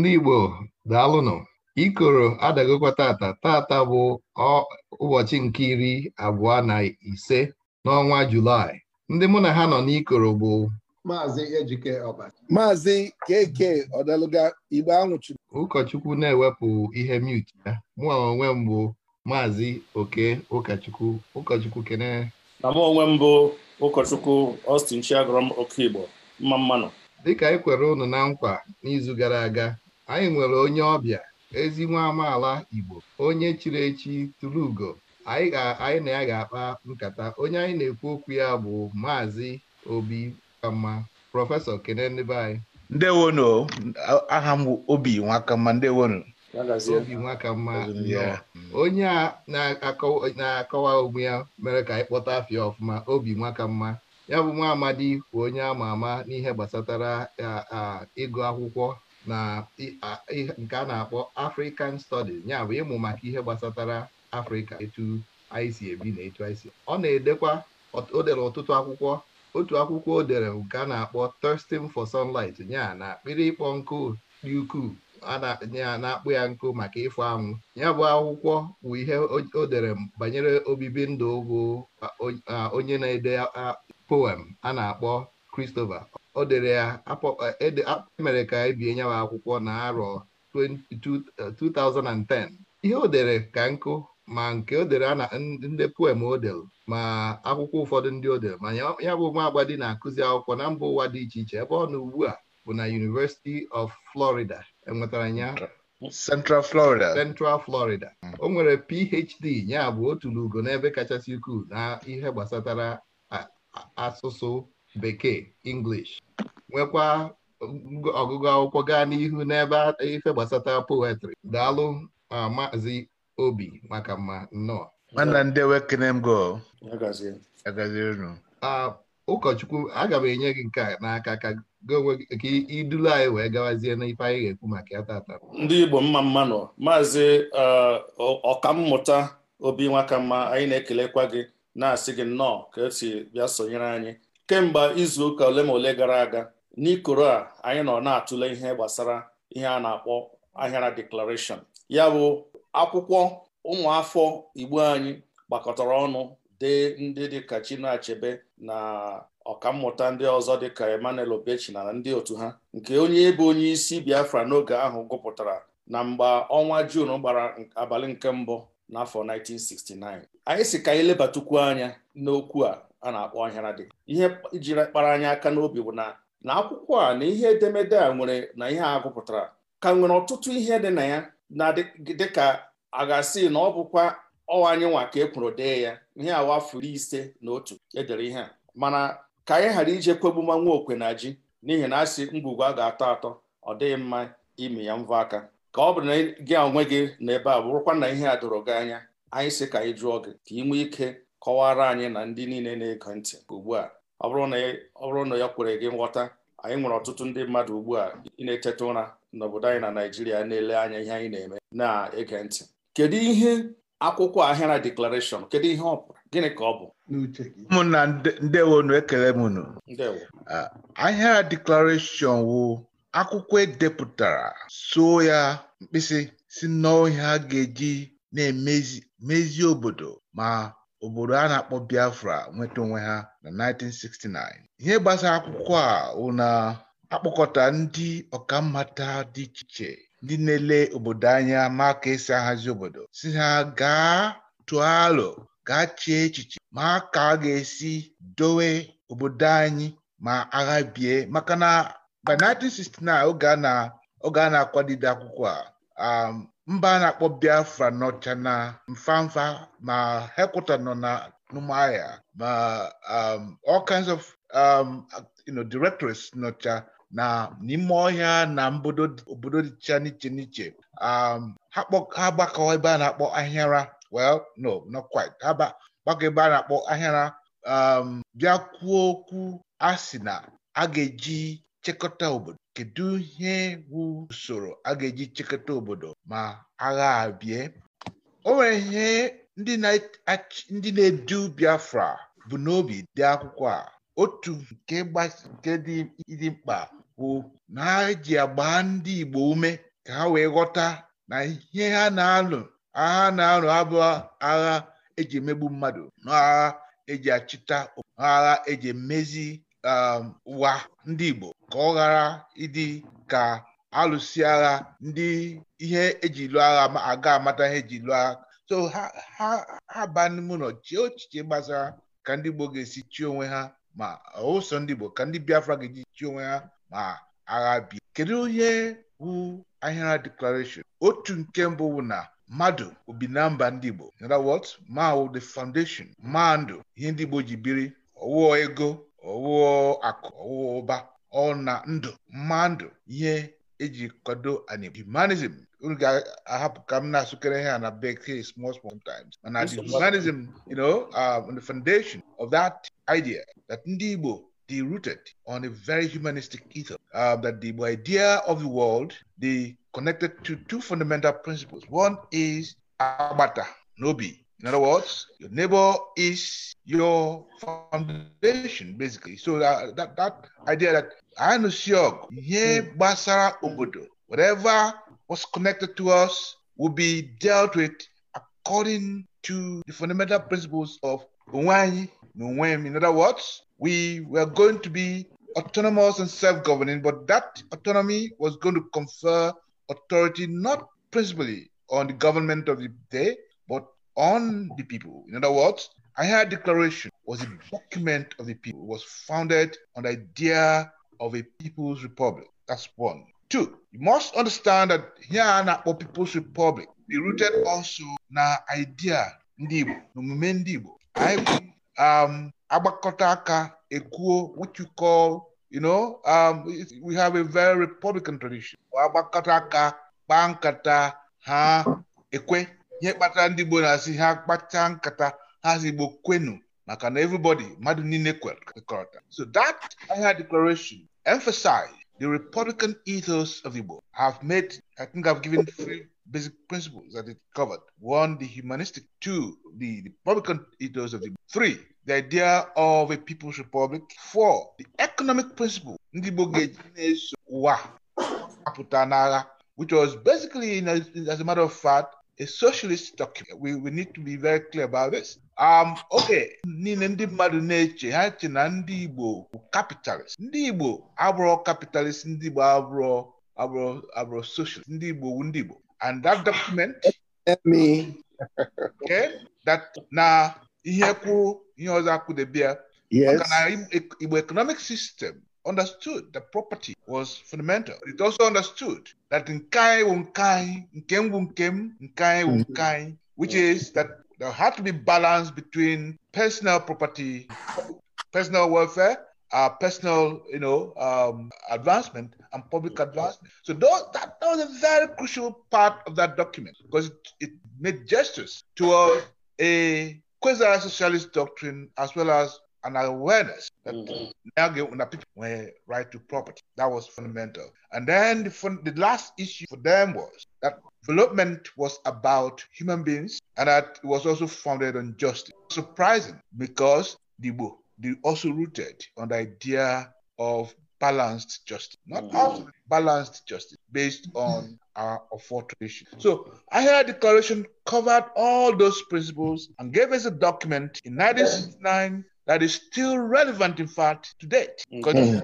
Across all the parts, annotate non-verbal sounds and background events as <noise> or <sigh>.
ndị Igbo daalụnụ ikoro adagokwa tata tata bụ ụbọchị nke iri abụọ na ise n'ọnwa Julaị ndị mụ na ha nọ n'ikoro bụ Maazị Ejike Ọbasi Maazị Keke Ọdaluga Igbo anwụchiri ụkọchukwu na-ewepụ ihe mute ya mụọ onwe m bụ Maazị Oke ụkọchukwu ụkọchukwu kene na mụ onwe m bụ ụkọchukwu Austin Chiagọrọm Okigbo mma mmanụ dịka ị e kwere unu na nkwa n'izu gara aga anyị nwere onye ọbịa ezi nwa amaala Igbo onye chiri echi tụrụ ugo anyị na ya ga-akpa nkata onye anyị na-ekwu okwu ya bụ maazị Obi Nwakama prọfesọ kene ndị aha m Obi nwakamma ndewonu Obi Nwakamma onye a na-akọwa onwe ya mere ka anyị kpọta afịa ọfụma Obi Nwakamma ya bụ nwa amadi bụ onye ama ama n'ihe gbasatara ịgụ akwụkwọ na nke a na-akpọ African Studies ya bụ ịmụ maka ihe gbasatara Afrịka etu anyị si ebi na etu anyị si ọ na-edekwa o dere ọtụtụ akwụkwọ otu akwụkwọ o dere nke a na-akpọ Thirsting for Sunlight nya na akpịrị ịkpọ nkụ dị ukwuu ya na-akpụ ya nkụ maka ịfụ anwụ ya bụ akwụkwọ bụ ihe o dere banyere obibi ndụ bụ onye na-ede poem a na-akpọ Christopher o dere ya emere e, e ka ebie nyawa akwụkwọ na arọ 2010 ihe o dere ka nkụ ma nke o dere na ndị poem o ma akwụkwọ ụfọdụ ndị o dere ma ya bụ nwa dị na-akụzi akwụkwọ na mba ụwa dị iche iche ebe ọ na ugbu a bụ na University of Florida enwetara ya Central Florida Central Florida hmm. o nwere PhD ya bụ otu n'ugo n'ebe kachasị ukwuu na ihe gbasatara asụsụ bekee English nwekwa ọgụgụ akwụkwọ gaa n'ihu n'ebe ife gbasata poetry daalụ maazị obi maka mma nnọọ ụkọchukwu aga m enye gị nke a n'aka ka idulu anyị wee gawazie n'ife anyị ga-ekwu maka ya tata ndị Igbo mma mma nọ maazị ọkammụta obi nwakamma anyị na-ekelekwa gị na-asị gị nnọọ ka esi bịa sonyere anyị kemgbe izu ụka ole ma ole gara aga n'ikoro a anyị nọ na-atụle ihe gbasara ihe a na-akpọ ahịara deklarashọn ya bụ akwụkwọ ụmụafọ igbo anyị gbakọtara ọnụ dee ndị dịka Chinua Achebe na ọkammụta ndị ọzọ dịka Emmanuel Obechi na ndị otu ha nke onye ebe onye isi Biafra n'oge ahụ gụpụtara na mgbe ọnwa juun gbara abalị nke mbụ n'afọ 1969 anyị si ka anyị lebatukwu anya n'okwu a a na-akpọ dị ihe jiri kpara anyị aka n'obi bụ na na akwụkwọ a na ihe edemede a nwere na ihe a gụpụtara ka nwere ọtụtụ ihe dị na ya na dịka a ga-asị na ọ bụkwa ọwa anyị nwa ka e kwuru dee ya ihe awa afọ ise na otu edere ihe a mana ka anyị ghara ije kwegbuma okwe na ji n'ihi na asị ngwugwu a ga-atọ atọ ọ dịghị mma imi ya mvọ aka ka ọ bụrụ na gị onwe gị na ebe a bụrụkwa na ihe a doro gị anya anyị si ka anyị jụọ gị ka ị nwee ike kọwara anyị na ndị niile na-ege ntị ugbu a ọ bụrụ na ya kwere gị nghọta anyị nwere ọtụtụ ndị mmadụ ugbu a ị na-eteta ụra n'obodo anyị na Naijiria na-ele anya ihe anyị na-eme na-ege ntị kedu ihe akwụkwọ ahịara deklarashọn kedu ihe ọ pụrụ gịnị ka ọ bụ ụmụnna ndewonu ekele m unu ahịara deklarashọn wụ akwụkwọ edepụtara so ya mkpịsị si a ga-eji na-emezi mezie obodo ma obodo a na-akpọ Biafra nweta onwe ha na 1969 ihe gbasara akwụkwọ a wụ na akpọkọta ndị ọkammata dị iche iche ndị na-ele obodo anya ma ka esi ahazi obodo si ha gaa tụọ alo gaa chee echiche ma ka a ga-esi dowe obodo anyị ma agha bie maka na by 1969 oge a na-akwadide akwụkwọ a um, mba a na-akpọ biafra nọcha na mfamfa ma hekwụta nọ na Umuahia ma um, all kinds of um, you know directors nọcha na n'ime ọhịa na obodo dịcha n'iche n'iche um, ha gbakọ ebe a na-akpọ ahịara well no not quite ha gbakọ ebe a na-akpọ ahịara bịa kwuo okwu a sị na a ga-eji chekọta obodo kedu ihe bụ usoro a ga-eji chekọta obodo ma agha abịa o nwere ihe ndị na-edu Biafra bụ n'obi dị akwụkwọ a otu nke nke dị mkpa bụ na ha ji agba ndị Igbo ume ka ha wee ghọta na ihe ha na-alụ agha na-alụ abụ agha eji emegbu mmadụ na agha eji achịta agha eji emezi Um, wa ndị Igbo ka ọ ghara ịdị ka alụsi agha ndị ihe eji lụọ agha aga amata ihe eji lụọ agha so ha aba n'ime ụlọ chee gbasara ka ndị Igbo ga-esi chi onwe ha ma ụsọ ndị Igbo ka ndị Biafra ga-eji chi onwe ha ma agha bi kedu onye hụ ahịara Deklaration otu nke mbụ bụ na mmadụ obi na mba ndị Igbo in other ma the foundation ma ndụ ihe ndị Igbo ji biri ọwụọ ego Owo akụ owuwo ụba na ndụ mmandu ihe eji kwado anim humanism unu ga-ahapụ ka m na-asụkere ha na bekee small small times. mana the humanism you know um, the foundation of that idea that ndị Igbo dey rooted on a very humanistic ethos uh, that the idea of the world dey connected to two fundamental principles one is agbata n'obi In other words, your neighbor is your foundation, basically. So uh, that that, idea that I know hmm. gbasara obodo, whatever was connected to us will be dealt with according to the fundamental principles of Onwanyi nwem In other words, we were going to be autonomous and self-governing, but that autonomy was going to confer authority not principally on the government of the day, on the people. In other words, ahia declaration was a document of the people, it was founded on the idea of a people's republic. That's one. Two, you must understand that here na for people's republic, be rooted also na idea ndị Igbo, n'omume ndị Igbo. Anyị um, agbakọta aka ekwuo what you call, you know, um, we have a very republican tradition. Agbakọta aka, kpaa nkata, ha ekwe ihe kpatara ndị Igbo na-asị ha kpachaa nkata ha si Igbo kwenu maka na everybody mmadụ niile kwekọrọta so that Ahia declaration emphasized the republican ethos of Igbo have made I think have given three basic principles that it covered one the humanistic two the republican ethos of Igbo three the idea of a people's republic four the economic principle ndị Igbo ga-eji na-eso ụwa apụta n'agha which was basically as a matter of fact a socialist document. We, we need to be very clear about this. Um, okay, niile ndị mmadụ na-eche ha che na ndị Igbo bụ capitalist. Ndị Igbo abụrụ capitalist, ndị Igbo abụrụ abụrụ abụrụ socialist, ndị Igbo bụ ndị Igbo. And that document. <laughs> okay, that na ihe kwuru ihe ọzọ akwụdebe ya. Yes. Maka na Igbo economic system understood that property was fundamental. It also understood that nkai wunkai, nkem wunkem, nkai wunkai, which mm-hmm. is that there had to be balance between personal property, personal welfare, uh, personal, you know, um, advancement and public mm-hmm. advancement. So those, that, that was a very crucial part of that document because it, it made gestures towards a quasi-socialist doctrine as well as an awareness that mm-hmm. Nyage people were right to property. That was fundamental. And then the, fun- the last issue for them was that development was about human beings and that it was also founded on justice. Surprising because the book they also rooted on the idea of balanced justice, not mm-hmm. balanced justice based mm-hmm. on mm-hmm. our authorization. So I declaration covered all those principles and gave us a document in 1969 that is still relevant, in fact, today. Mm-hmm. Because mm-hmm.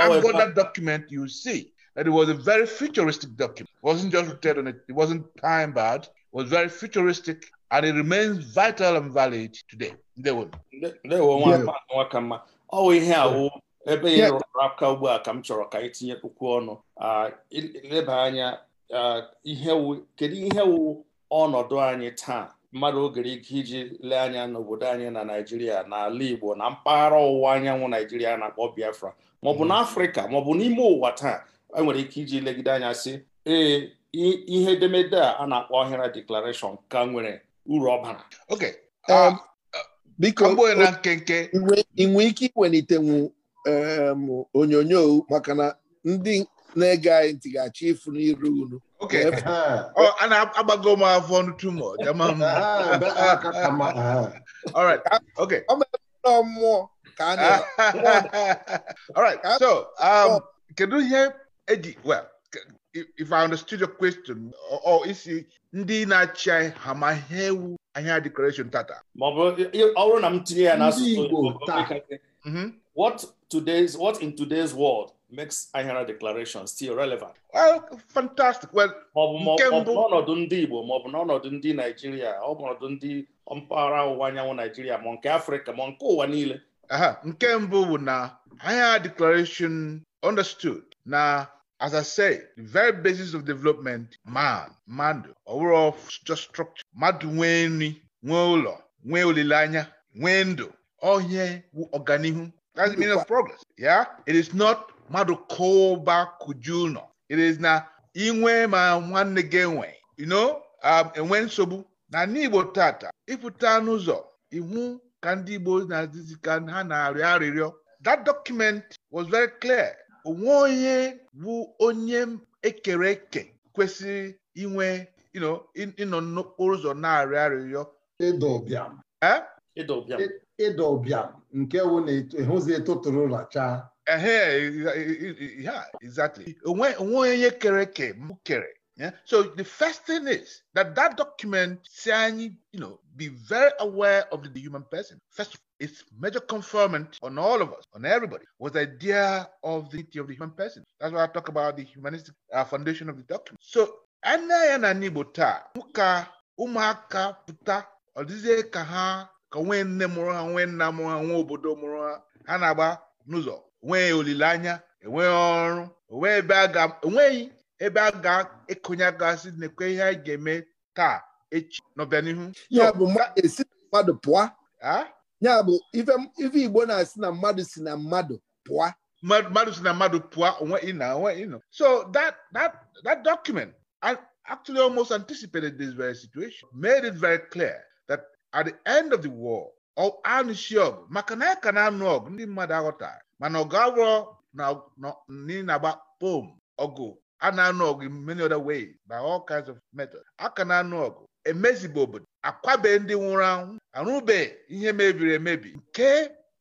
I've got that document, you see that it was a very futuristic document. It wasn't just written on it, it wasn't time bad it was very futuristic and it remains vital and valid today. They will. They will want to work Oh, ihe ahụ ebe ị rụrụ aka ugbu a ka m chọrọ ka anyị tinyekwukwu ọnụ ah, leba anya ah, ihe kedu ihe wụ ọnọdụ anyị taa mmadụ ogere ike iji lee anya n'obodo anyị na naijiria n'ala igbo na mpaghara ọwụwa anyanwụ naijiria na-akpọ biafra maọbụ mhm. n'afrịka maọbụ n'ime ụwa taa enwere ike iji legide anya si ee ihe edemede a na-akpọ ọhịra deklarashọn ka nwere uru ọ bara nkenke ike iwelitenwu um, onyonyo maka na ndị na-ege anyị ntị achọ ịfụ n'iru unu Okay. and I'm gonna go my phone too all right. Okay. So, um, can you Well, if I understood your question, or is na m tinye ya n'asụsụ Igbo, what today's what in today's world makes IHRA declaration still relevant. Well, fantastic. Well, nke mbụ n'ọnọdụ ndị Igbo bụ n'ọnọdụ ndị Naijiria ọ bụ ọnọdụ ndị mpaghara ọwụwa anyanwụ Naijiria ma nke Afrịka ma nke ụwa niile nke mbụ bụ na IHRA declaration understood na as I say the very basis of development man mmadụ ọwụrụ just structure mmadụ nwee nri nwee ụlọ nwee olileanya nwee ndụ ọhịa bụ ọganihu that's the meaning of progress yeah it is not mmadụ kụba kụju ụlọ it is na inwe ma nwanne gị enwe you know um, enwe nsogbu na n'igbo tata ịpụta n'ụzọ iwu ka ndị igbo na-adịzi ka ha na-arịọ arịrịọ that document was very clear onwe onye bụ onye ekere eke kwesịrị inwe ịnọ n'okporo ụzọ na-arịọ arịrịọ ịdọ ịdọ nke wụ na ịhụzi e, e etotụrụ chaa. yeah, exactly. kere So the first thing is that that document saying, you know, be very aware of the human person. First, its major confirmant on all of us, on everybody, was the idea of the of the human person. That's why I talk about the humanistic uh, foundation of the document. So, anya na n'Igbo taa, ụka ụmụaka pụta, ka ha ka nwee nne mụrụ ha, nwee nna mụrụ ha, nwee obodo mụrụ ha, ha na-agba n'ụzọ enweghị olileanya enweghị ọrụ enweghị ebe a ga-ekonye gasị nekwe ihe anyị ga-eme taa echi n'ọbịanihu e ya bụ esi na mmadụ pụọ ya bụ ife igbo na-asị na mmadụ si na mmadụ pụa. mmadụ si na mmadụ pụa onwe ịna onwe ịnọ so that that that document actually almost anticipated this very situation made it very clear that at the end of the war ọ anụsi ọgụ maka na ya ka na-anụ ọgụ ndị mmadụ aghọtara mana ọ ga-awụrọ na-agba pom ọgụ a na-anụ ọgụ in many other ways by all kinds of methods aka na-anụ ọgụ emezibe obodo akwabe ndị nwụrụ anwụ arụbe ihe mebiri emebi nke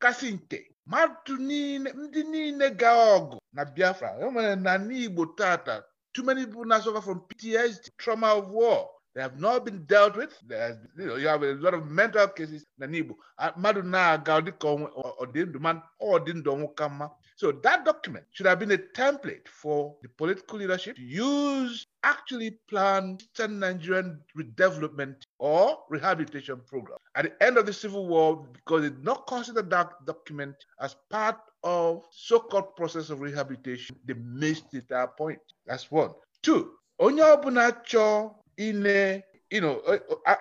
kasị nke mmadụ niile ndị niile ga ọgụ na Biafra enwere na n'Igbo tata too many people na suffer from PTSD trauma of war They have not been dealt with. There's, you know, you have a lot of mental cases na Igbo. Mmadụ na-aga ọ dịka So that document should have been a template for the political leadership to use actually plan Eastern Nigerian redevelopment or rehabilitation program. At the end of the Civil War, because it did not consider that document as part of so-called process of rehabilitation, they missed it at that point. That's one. Two, onye ọbụla chọọ ine ino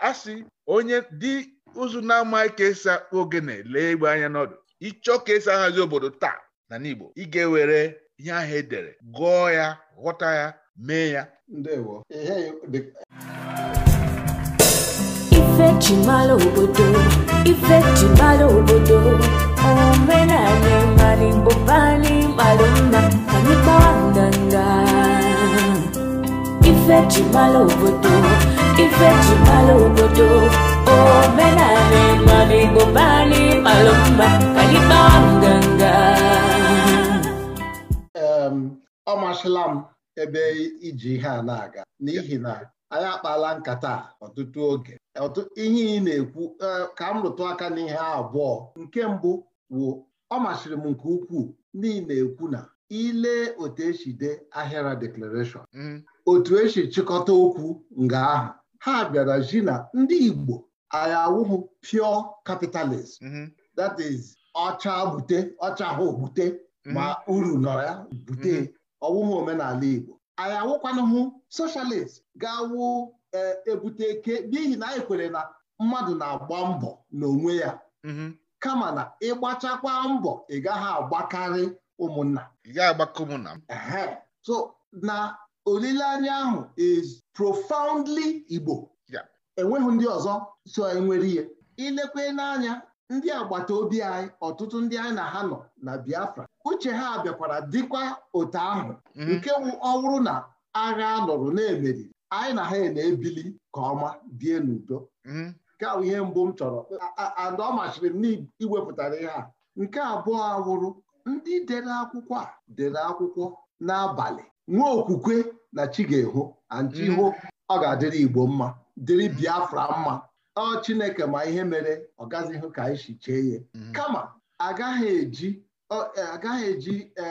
asị onye dị ụzụ na-amaghị ka esi akpụ ogene lee egbe anya n'ọdụ ịchọ ka esi ahazi obodo taa na n'Igbo ị ga-ewere ihe ahụ edere gụọ ya ghọta ya mee ya ife jimara obodo ife jimara obodo omenala mara igbo bani mara mma anyị kpọọ ndanda ife ji mara obodo ife ji mara obodo omenala mmadụ igbo mba anyị malụ mba ka anyị kpawa nganga ọ masịla m ebe iji ihe a na-aga n'ihi na anyị akpala nkata ọtụtụ oge ihe ị na-ekwu e, ka m rụtụ aka n'ihe abụọ nke mbụ wụ ọ masịrị m nke ukwuu ndị na-ekwu na ile otu esi dee ahịara declaration mm. otu esi chịkọta okwu nga ahụ ha bịara ji na ndị Igbo anyị awụhụ pure capitalist mhm. that is ọcha bute ọcha ahụ bute mhm. ma uru nọ ya bute mhm. ọwụhụ omenala Igbo anyị awụkwanụhụ socialist ga-awụ e, ebute eke n'ihi na anyị kwere na mmadụ na-agba mbọ n'onwe ya kama na ịgbachakwa mbọ ị gaghị agbakarị ụmụnna ụmụnna so na olileanya ahụ is profoundly Igbo enweghị ndị ọzọ so enwere ihe ilekwe n'anya ndị agbata obi anyị ọtụtụ ndị anyị na ha nọ na Biafra uche ha bịakwara dịkwa otu ahụ mhm. nke ọwụrụ na agha lụrụ na-emeri anyị na ha e na-ebili ka ọma bie n'udo mhm. nke ahụ ihe mbụ m chọrọ ada ọ machiri m n'iwepụtara ihe a nke abụọ awụrụ ndị dere akwụkwọ a dere akwụkwọ n'abalị nwa okwukwe na chi ga-ehu anchi mm. ọ ga-adịrị Igbo mma dịrị Biafra mma ọ Chineke ma ihe mere ọ gazi hụ ka anyị si chee ya mm. kama agaghị eji e, agaghị eji e,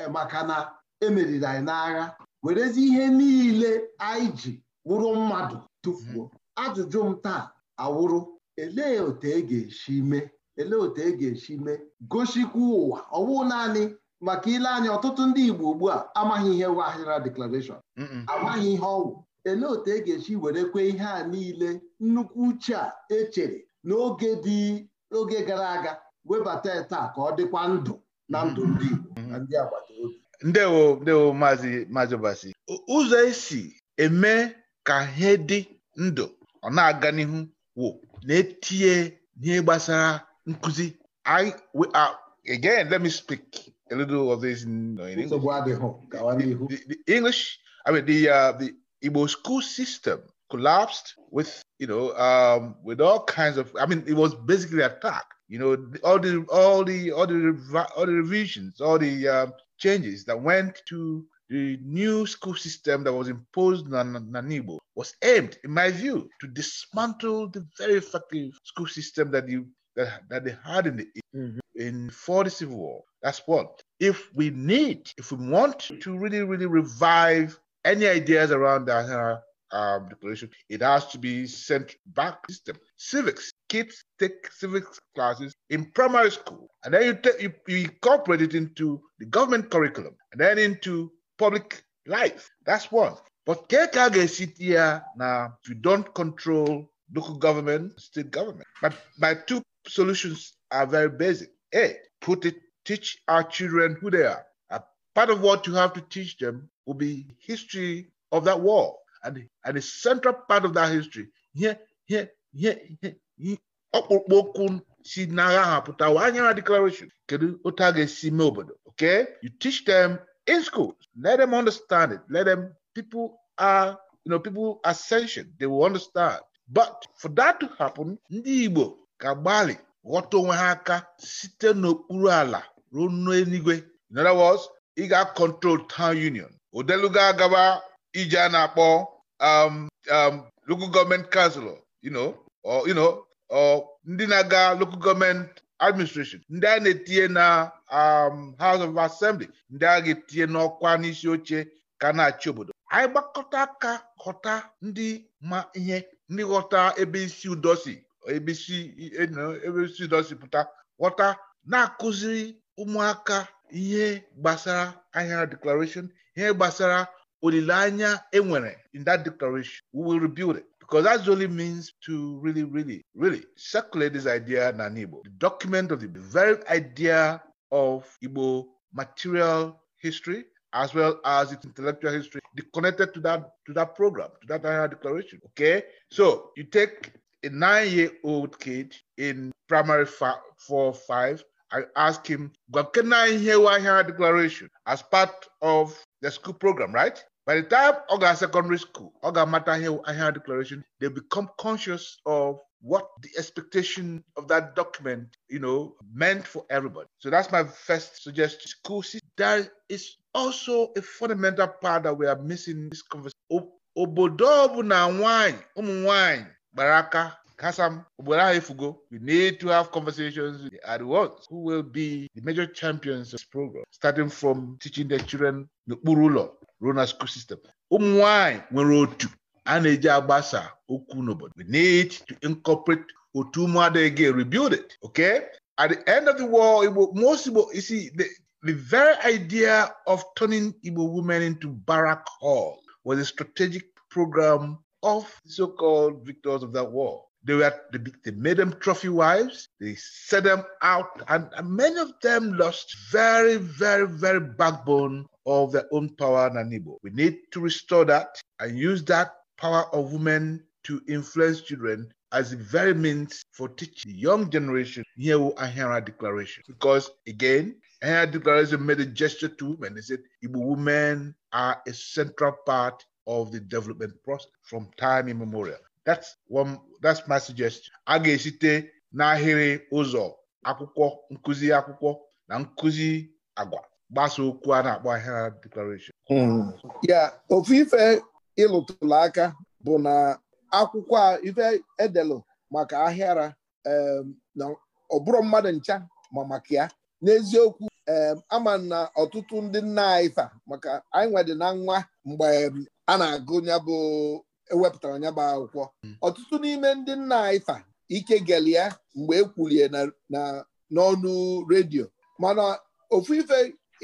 e, maka na emeriri anyị n'agha werezi ihe niile anyị ji wụrụ mmadụ tụfuo mm. ajụjụ m taa awụrụ elee otu e ga-esi mee elee otu e ga-esi mee gosikwa ụwa ọ naanị maka ile anya ọtụtụ ndị Igbo ugbu a amaghị ihe wụ ahịra deklarashọn amaghị ihe ọwụ ele otu e ga echi were kwe ihe a niile nnukwu uche a echere n'oge dị oge gara aga webata taa ka ọ dịkwa ndụ na mm-hmm. ndụ ndị Igbo mm-hmm. na ndị ndewo ndewo maazị maazị Obasi ụzọ esi eme ka ihe dị ndụ ọ na-aga n'ihu wụ na-etinye ihe gbasara nkụzi uh, again let me speak a little of this you know, in English. The, the, the, English, I mean, the uh, the Igbo school system collapsed with you know um, with all kinds of. I mean, it was basically attacked. You know, all the all the all the all the revisions, all the um, changes that went to the new school system that was imposed on igbo was aimed, in my view, to dismantle the very effective school system that you that, that they had in the mm-hmm. in before the Civil War. That's what. If we need, if we want to really, really revive any ideas around the Athena uh, um, declaration, it has to be sent back system. Civics, kids take civics classes in primary school, and then you, take, you, you incorporate it into the government curriculum, and then into public life. That's one. But kekage sit here now if you don't control local government, state government. But my two solutions are very basic. A, put it teach our children who they are. A part of what you have to teach them will be history of that war and and the central part of that history. Ihe ihe okwu si n'agha ha pụta declaration kedụ otu a ga-esi mee obodo okay you teach them in school. let them understand it let them people are you know people ascension sentient they will understand but for that to happen ndị Igbo ga gbalị. ghọta onwe ha aka site n'okpuru ala ruo n'eluigwe in other words ị ga-control town union odeluga agaba ije a na-akpọ um, um, local government council ndị na-aga local government administration ndị a na-etinye na um, house of assembly ndị a ga-etinye n'ọkwa n'isi oche ka na-achị obodo anyị gbakọta aka ghọta ndị ma ihe ndị ghọta ebe isi udo si ebesi ebesi dọsipụta ghọta na-akụziri ụmụaka ihe gbasara ahịa declaration ihe gbasara olileanya enwere in that declaration we will rebuild it because the only means to really really really circulate this idea na Igbo the document of the, the very idea of Igbo material history as well as its intellectual history connected to that to that program to that declaration okay so you take a nine year old kid in primary five, four or five. I asked him, Gokena Hewaha declaration as part of the school program, right? By the time Oga secondary school, Oga Matahe declaration, they become conscious of what the expectation of that document, you know, meant for everybody. So that's my first suggestion. School system, is also a fundamental part that we are missing in this conversation. obodo ọ na wine ụmụ nwanyị gbara aka Kasam Ogbonaifugo, we need to have conversations with the ones who will be the major champions of this program, starting from teaching the children n'okpuru ụlọ ruo na school system. Ụmụ nwanyị nwere otu a na-eji agbasa okwu n'obodo. We need to incorporate otu ụmụada again, rebuild it, okay? At the end of the war, Igbo, most Igbo, you see, the, the very idea of turning Igbo women into barrack hall was a strategic program of so-called victors of that war. They were they, they made them trophy wives. They set them out, and, and many of them lost very, very, very backbone of their own power and Nanibo. We need to restore that and use that power of women to influence children as a very means for teaching the young generation here ahira Declaration. Because again, ahira Declaration made a gesture to women. They said Igbo women are a central part of the development process from time immemorial. That's one, that's my suggestion. A ga-esite n'ahịrị ụzọ akwụkwọ nkụzi akwụkwọ na nkụzi agwa gbasa okwu a na-akpọ ahịa declaration. Hmm. ya ofu ife ịlụtụrụ aka bụ na akwụkwọ a ife edelu maka ahịara na ọ bụrụ mmadụ ncha ma maka ya n'eziokwu ama na ọtụtụ ndị nna anyị maka anyị nwedị na nwa mgbe a na-agụ ya bụ ewepụtara ya bụ akwụkwọ hmm. ọtụtụ n'ime ndị nna ifa ike gele ya mgbe e n'ọnụ redio mana ofu ife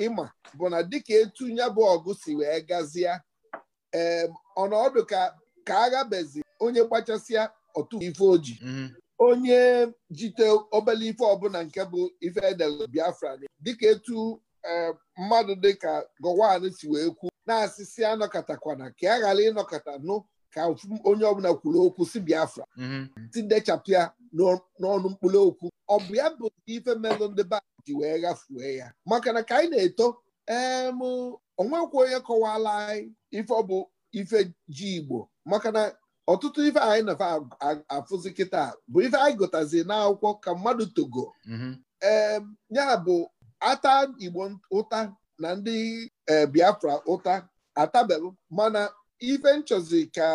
ịma bụ na dịka etu ya ọgụ si wee gazie ee ọnọdụ ka ka aghabezi onye gbachasịa otu ife oji hmm. onye jite obele ife ọbụla nke bụ ife edel Biafra dịka etu mmadụ dịka Gowon si wee kwuo. na-asịsị anọkọtakwana ka a ghara ịnọkọta nụ ka onye ọbụla kwuru okwu si biafra mhm. tidechapụ ya n'ọnụ mkpụrụ okwu ọ bụ ya bụ ife melụ ndị ba ji wee ghafuo ya maka na ka anyị na-eto em onwekwa onye kọwala anyị ife ọ bụ ife ji igbo maka na ọtụtụ ife anyị nafa afụzi kịta bụ ife anyị gụtazi n'akwụkwọ ka mmadụ togo mhm. ee ya bụ ata igbo ụta na ndị e, Biafra ụta atabelụ mana ife nchọzi ka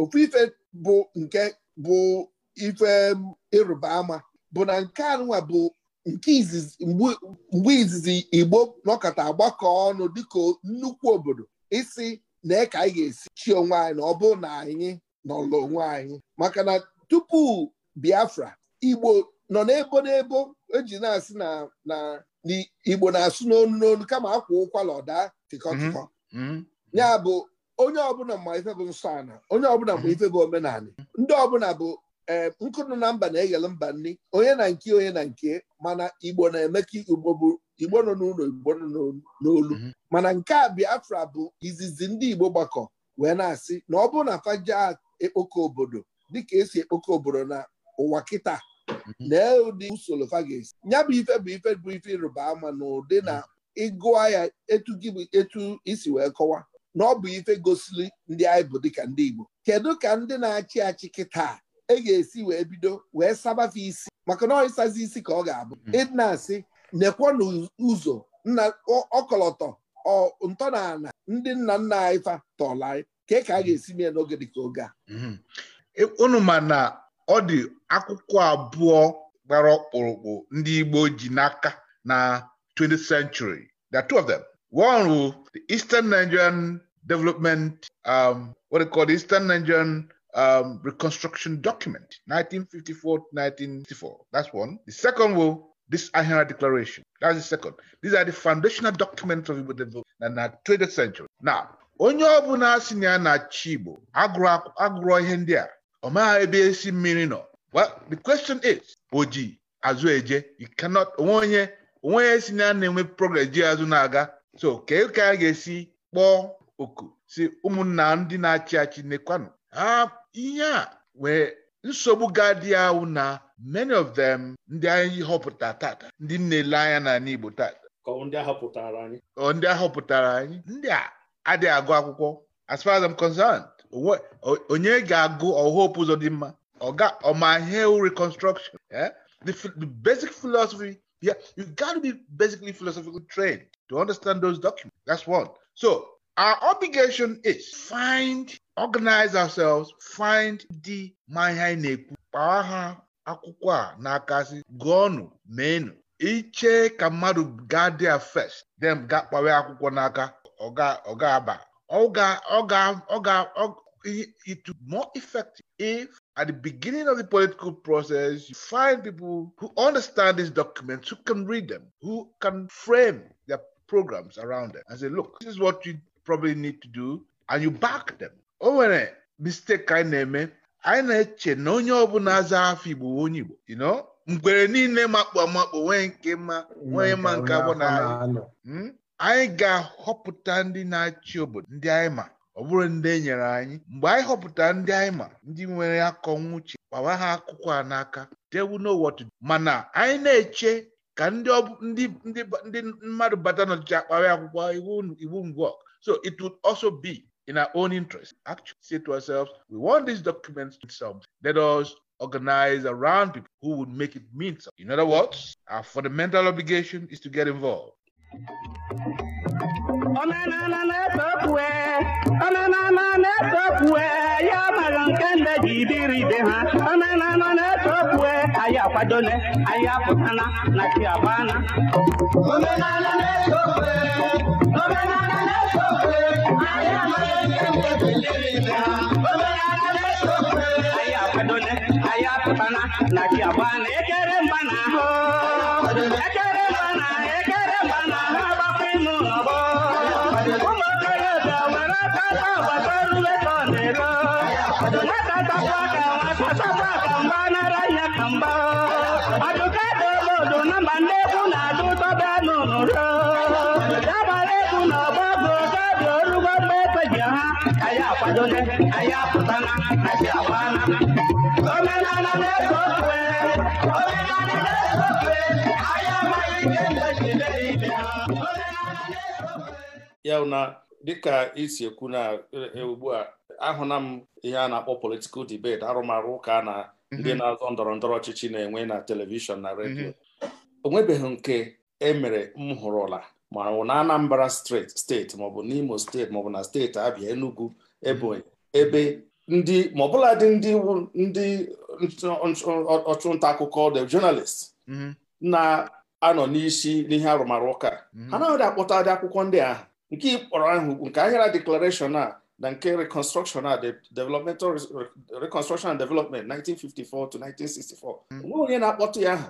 ofu ife bụ nke bụ ife ịrụba ama bụ na nke anụnwa bụ nke izizi mgbe izizi Igbo nọkọta agbakọ ọnụ dịka nnukwu obodo isi na ka anyị ga-esi chi onwe anyị na ọ bụ na anyị nọlụ onwe anyị maka na tupu Biafra Igbo nọ n'ebo n'ebo eji na-asị na na igbo na-asụ n'onu n'onu kama akwa ụkwala ọda tịkọ mhm. tịkọ mhm. ya bụ onye ọbụla ma ife bụ nsọ ana onye ọbụla ma mhm. ife bụ omenala ndị ọbụla bụ eh, nkụnụ na mba na-eghele mba nri onye na nke onye na nke mana igbo na-eme ka igbo bụ igbo nọ n'ụlọ igbo nọ n'olu mana nke a biafra bụ izizi ndị igbo gbakọ wee na-asị na ọ bụ na faja ekpoko obodo dịka esi ekpoko obodo na ụwa kịta Mm-hmm. lee ụdị usoro fa ga-esi ya bụ ife bụ ife bụ ife ịrụba ama na ụdị na mm-hmm. ịgụa ya etu gị bụ etu isi wee kọwa na ọ bụ ife gosiri ndị anyị bụ dịka ndị Igbo kedu ka ndị na-achị achị kịta e ga-esi wee bido wee sabafe isi maka na ọ isi ka ọ ga-abụ ịdị mm-hmm. na-asị nekwa n'ụzọ nna ọkọlọtọ ntọ na ndị nna nna anyị fa tọọla anyị ka ka a ga-esi mee n'oge dịka oge a e, unu ma na ọ dị akwụkwọ abụọ gbara ọkpụrụkpụ ndị Igbo ji n'aka na 20th century there are two of them one wụ the Eastern Nigerian Development um, what they call the Eastern Nigerian um, Reconstruction Document 1954 1964 that's one the second wụ this Ahira Declaration that's the second these are the foundational documents of Igbo development na 20th century now onye ọ bụla si na ya na-achị agụrụ ihe ndị a ọ maghị ebe esi mmiri nọ well the question is o ji azụ eje you cannot onwe onye onwe onye si na na-enwe progress ji azụ na-aga so kee ka a ga-esi kpọọ oku si ụmụnna ndị na-achị achị nekwanụ ha ihe a wee nsogbu ga ahụ na many of them ndị anyị họpụta tata ndị na-ele anya n'ala Igbo tata ndị ahọpụtara anyị ndị a adịghị agụ akwụkwọ as far as I'm concerned onye ga-agụ ọhope ụzọ dị mma ọma hill reconstruction eh? the, the basic philosophy yeah, you got to be basically philosophical trained to understand those documents that's one so our obligation is find organize ourselves find the ma anyị na-ekwu kpawa ha akwụkwọ a n'akasị gụọnụ meenụ iche ka mmadụ gaa dia first then ga akwụkwọ n'aka Oga Oga aba Olga, Olga, Olga, Olga it, it more effective if at the beginning of the political process you find people who understand these documents, who can read them, who can frame their programs around them and say, look, this is what you probably need to do, and you back them. O nwere mistake anyị na-eme anyị na-eche na onye ọbụla aza bụ onye Igbo you know mgbere niile makpụ amakpụ nwee nke mma nwere ma nke abụ na anyị ga-ahọpụta ndị na-achị obodo ndị anyị ma ọ bụrụ ndị enyere anyị mgbe anyị họpụta ndị anyị ma ndị nwere akọ nwuche gbawa ha akwụkwọ a n'aka tewu n'ụwọtụ mana anyị na-eche ka ndị ndị mmadụ bata n'ọchịchị akpara akwụkwọ iwu ngwọ so it would also be in our own interest actually say to ourselves we want these documents to some let us organize around people who would make it mean something in other words our fundamental obligation is to get involved omenala na efe okwue omenala na ya mara nke nde ji biri ibe ha omenala na efe okwue anyị akwadone anyị apụtana na na-eto na nke ji biri ibe ha na akwadone apụtana na chiabana dole na omenala na ya na dịka isi ekwu na e, e, ugbu a ahụna m ihe a na-akpọ politikal debate arụmarụ ụka na mhm. ndị na-azọ ndọrọ ndọrọ ọchịchị na-enwe na telivishọn na redio mhm. o nwebeghị nke emere m hụrụla ma ọ na Anambra steeti maọbụ n'Imo steeti maọbụ na steeti Abịa Enugu Ebonyi ebe ndị ma ọbụla dị ndị ndị ọchụnta akụkọ the journalist mhm. na-anọ n'isi n'ihe arụmarụ ụka mhm. ha naghị akpọta dị akwụkwọ ndị ahụ nke ịkpọrọ ahụ nke ahịara declaration a na nke reconstruction a developmental reconstruction and development 1954 to 1964 mhm. onwe onye na-akpọtụ ya aha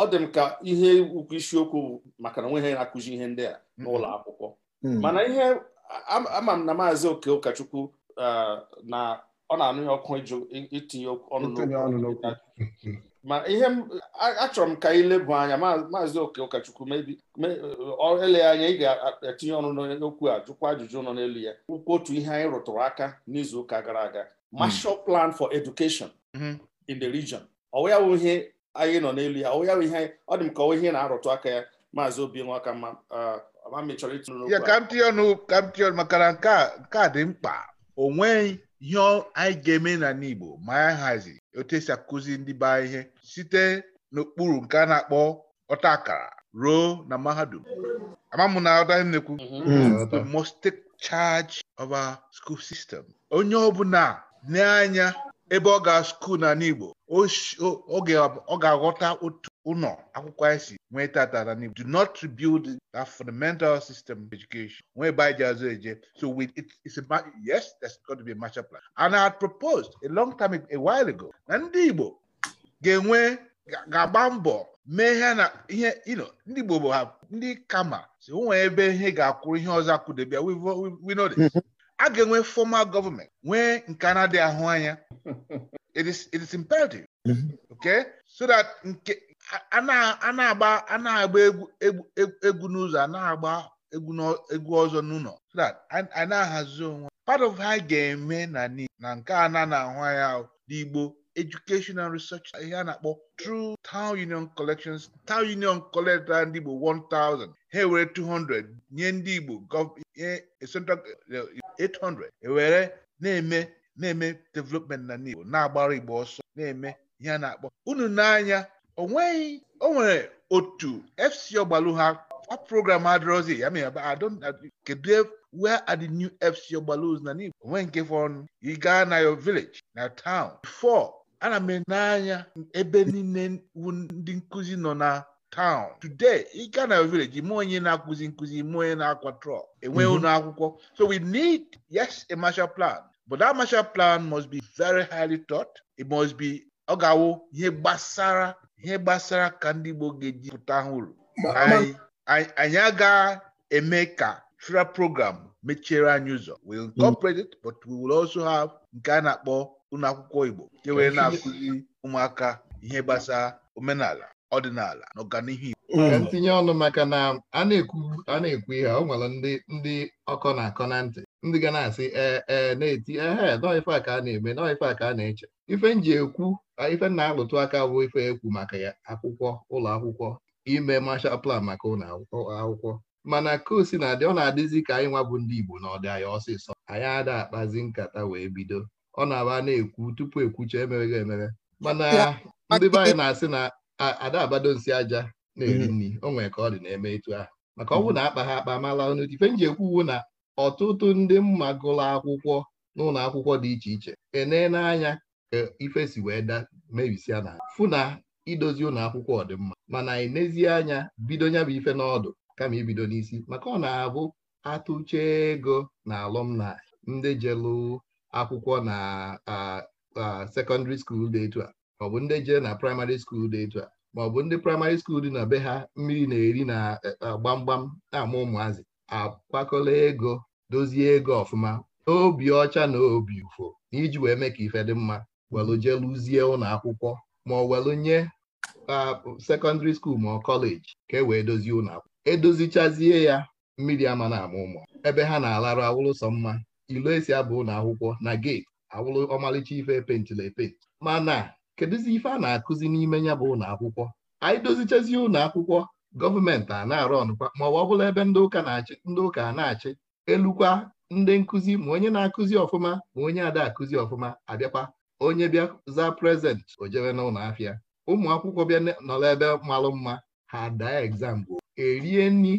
ọ dị m ka ihe ukwu isiokwu maka na onweghị na-akụzi ihe ndị a n'ụlọ akwụkwọ mana ihe ama m na maazị oke ụkọchukwu na ọ na-anụghị ọkụ itinye ọnụ ma ihe achọrọ m ka anyị lebụ anya maazị oke ụkọchukwu mebi ele anya ị ga-etinye ọnụ n'okwu a jụkwa ajụjụ nọ n'elu ya kwukwu otu ihe anyị rụtụrụ aka n'izuụka gara aga hmm. Marshal Plan for Education hmm. in the Region ọwụya ihe anyị nọ n'elu ya ọwụya bụ ihe ọ dị m ka ọwa ihe na-arụtụ aka ya maazị obi nwa mma ya ka m ọnụ ọnụ maka na nke a dị mkpa o nweghị ihe anyị ga-eme na n'Igbo ma anyị hazi otu esi akụzi ndị be ihe site n'okpuru nke a na-akpọ ọta akara ruo na mahadum amam na ọdaghị m na charge of our school system onye ọbụla n'anya ebe ọ ga skuul na n'Igbo ọ ga-aghọta otu ụnọ akwụkwọ anyị nwee tata na do not rebuild that fundamental system of education nwee ebe anyị ji azụ eje so with it, it's a, yes there's going to be a master plan and I had proposed a long time a while ago na ndị Igbo ga-enwe ga-agba mbọ mee ihe na ihe ino ndị Igbo bụ ha ndị kama si nwee ebe ihe ga-akwụrụ ihe ọzọ debia we know this a ga-enwe formal gọọmenti nwee nke na ahụ anya <laughs> it is it is imperative okay so that nke a na-agba a egwu n'ụzọ a na-agba egwu ọzọ n'ụlọ so that a na-ahazi onwe part of ha ga-eme na na nke a na na-ahụ ya n'igbo educational research ihe a na-akpọ through town union collections town union collector ndị Igbo 1000 ha ewere 200 nye ndị Igbo nye central 800 ewere na-eme na-eme development na Igbo na-agbara Igbo ọsọ na-eme ihe a na-akpọ unu n'anya o nweghị o nwere otu fc ọgbalụ ha a program adịrọzi ya mere kedu e, wey are di new fc ọgbalụs na n'igbo onwe nke fọnụ ị gaa na your village na town before ana m anya ebe niile ndị nkụzi nọ na town today ị gaa na your village ime onye na-akụzi nkụzi ime onye na-akwa trọk enweghị mhm. ụlọ akwụkwọ so we need yes a master plan but that master plan must be very highly thought it must be ọ ga-awụ ihe gbasara ihe gbasara ka ndị Igbo ga-eji pụta ha uru anyị aga eme ka fira program mechiere anyị ụzọ we incorporate it but we will also have nke a na-akpọ ụlọ akwụkwọ Igbo nke were na-akụzi ụmụaka ihe gbasara omenala ọdịnala na ọganihu Igbo ntinye ọnụ maka na a na-ekwu a na-ekwu ihe ọ nwere ndị ndị ọkọ na akọ na ntị ndị ga na-asị ee eh, ee eh, na-eti ehe eh, nọọ ife a ka a na-eme nọọ ife a ka a na-eche ife ekwu ife na-alụtụ aka bụ ife ekwu maka akwụkwọ ụlọ akwụkwọ ime mashal plan maka ụlọ akwụkwọ mana kosi na adị ọ na-adịzi ka anyị nwa bụ ndị Igbo na ọ anyị ọsịsọ anyị ada akpazi nkata wee bido ọ na-aba na-ekwu tupu ekwucha emeweghị emere mana ndị be anyị na-asị na ada abado nsi aja na-eri mm. nri o nwere ka ọ dị na-eme etu ahụ maka ọ mm. bụ na akpa ha akpa mala ọnụ ife m na ọtụtụ ndị mma gụrụ akwụkwọ n'ụlọ akwụkwọ dị iche iche enee n'anya ife si wee da mebisia na fụ na idozi ụlọ akwụkwọ ọdịmma mana anyị n'ezie anya bido nya bụ ife n'ọdụ kama ibido n'isi maka ọ na-abụ atụche ego na alụmna ndị jelu akwụkwọ na sekọndịrị skuul dị etu a maọbụ ndị jee na praịmarị skuul dị etu a maọbụ ndị praịmarị skuul dị na be ha mmiri na-eri na e, gbamgbam na-ama ụmụazị akwakọla ego dozie ego ọfụma obi ọcha na obi ụfụ na iji wee mee ka ife dị mma welụ jeluzie ụlọ akwụkwọ ma ọ welụ nye sekọndịrị skuul ma ọ kọleji ka e wee dozie ụlọ akwụkwọ edozichazie ya mmiri ama na ama ụmụ ebe ha na-alarụ awụlụsọ mma ilo esi abụ ụlọ akwụkwọ na geeti awụlụ ọmalịcha ife epentịla Ma mana kedụzi ife a na-akụzi n'ime ya bụ ụlọ akwụkwọ anyị dozichazie ụlọ akwụkwọ gọọmenti a na-arụ ọnụkwa ma ọ bụla ebe ndị ụka na-achị ndị ụka na-achị elukwa ndị nkụzi ma onye na-akụzi ọfụma ma onye ada akụzi ọfụma abịakwa onye bịa za prezent o jebe n'ụlọ afịa ụmụ akwụkwọ bịa nọrọ ebe malụ mma ha daa egzam bụ e erie nri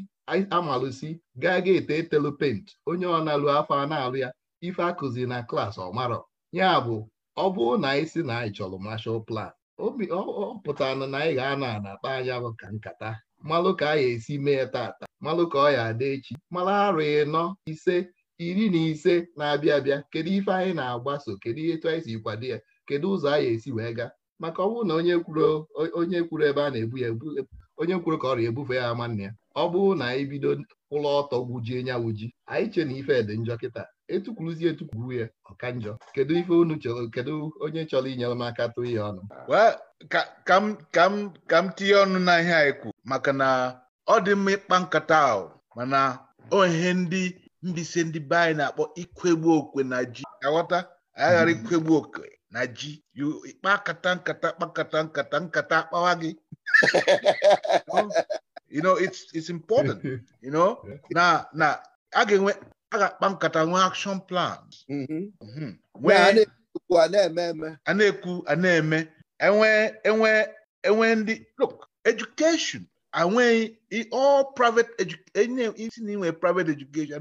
amalụsi gaa ga ete etelu pent onye ọ na-alụ afọ a na-alụ ya ife akụzi na klaasị ọmarọ ya bụ ọ bụrụ na anyị si na anyị chọrọ mashal plan ọ pụtara na anyị ga-anọ anakpa anya ka nkata malụ ka anyị esi mee tata malụ ka ọ ya ada echi mara arụ ịnọ ise iri na ise na-abịa abịa kedu ife anyị na-agbaso kedu ihe etu anyị si kwado ya kedu ụzọ anyị esi wee gaa maka ọ bụrụ na onye kwuru onye kwuru ebe a na-ebu ya onye kwuru ka ọrịa ebufe ya ama nna ya ọ bụrụ na anyị bido ụlọ ọtọ gwujie nya wuji anyị che na ife dị njọ kịta etukwuruzie etukwuru ya ọka njọ kedu ife unu chọrọ kedu onye chọrọ inyere m aka tụọ ya ọnụ ka m tinye ọnụ na ihe anyị kwu maka na ọ dị mma ịkpa nkata ahụ mana ndị mbise ndị be anyị na-akpọ ikwegbu okwe na ji aghọta anyị ghara mm. ikwegbu okwe na ji kata nkata kpakata nkata nkata akpawa gị you know it's it's important <laughs> you know na na a ga-enwe a ga-akpa nkata nwee action plan mm-hmm. mm-hmm. a na-ekwu a na-eme enwe e enwe enwe ndị look education anweghị all private education isi na inwe private education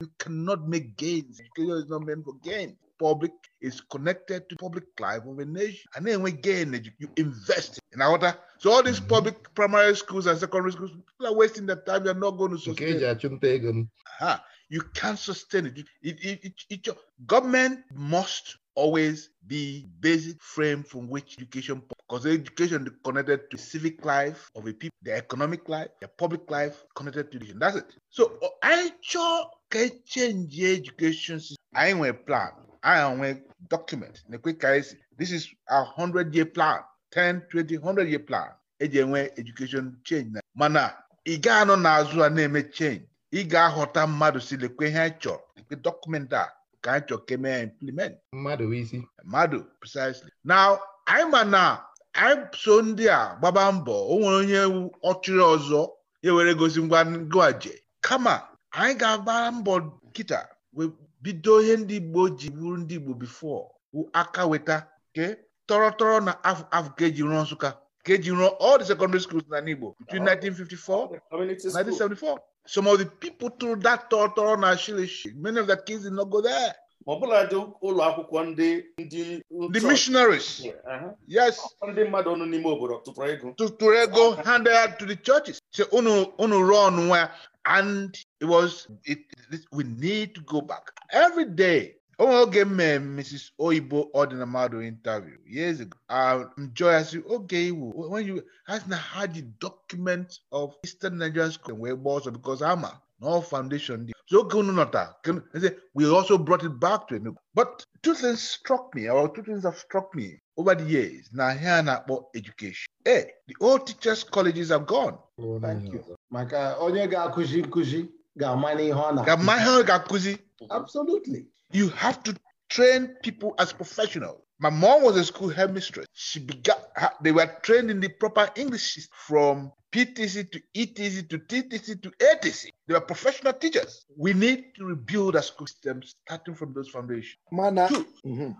you cannot make gains education is not meant for gain public is connected to public life of a nation a na-enwe gain you invest in aghọta so all these mm-hmm. public primary schools and secondary schools people are wasting their time they are not going to sustain ha You can't sustain it. It, it, it, it your, government must always be basic frame from which education because education connected to civic life of a people the economic life the public life connected to education that's it so anyị chọọ ka e change education anyị nwere plan anyị nwee document na-ekwe ka this is a hundred year plan 10 20 100 year plan eji enwe education change na mana ị ga-anọ a na-eme change ị ga-aghọta mmadụ si lekwe ihe anyị chọrọ nke dọkụmentị a ka anyị chọrọ ka e mee implement mmadụ isi mmadụ precisely now anyị ma na anyị so ndị a gbaba mbọ o nwere onye ọchịrị ọzọ ya e were gosi ngwa ngwaje kama anyị ga-agba mbọ kịta wee bido ihe ndị Igbo ji bụrụ ndị Igbo before aka weta ke tọrọtọrọ na afọ ka eji rụọ Nsụka ka eji all the secondary schools in Igbo between 1954 and 1974 some of the people through that tọrọ na shilishi many of the kids did not go there. ma ọ ụlọ akwụkwọ ndị ndị the missionaries uh-huh. yes ndị mmadụ ọnụ n'ime obodo tụtụrụ ego tụtụrụ ego handed to the churches so unu unu rụọ ọnụ nwa and it was it, it, we need to go back every day oge m Mrs. Oyibo ọdịna mmadụ interview years ago um, Joy oge iwu when you has na ha the document of Eastern Nigerian school wee gba ọsọ because ama na all foundation dị so oge unu nọta e we also brought it back to Enugu but two things struck me or two things have struck me over the years na ihe a na-akpọ education eh the old teachers colleges are gone oh, thank you maka onye ga-akụzi nkụzi ga-ama n'ihe ọ na ga-ama ihe ọ ga-akụzi Absolutely. You have to train people as professionals. My mom was a school headmistress. She began, they were trained in the proper English from PTC to ETC to TTC to ATC. They were professional teachers. We need to rebuild our school system starting from those foundations. Mana. Mm-hmm.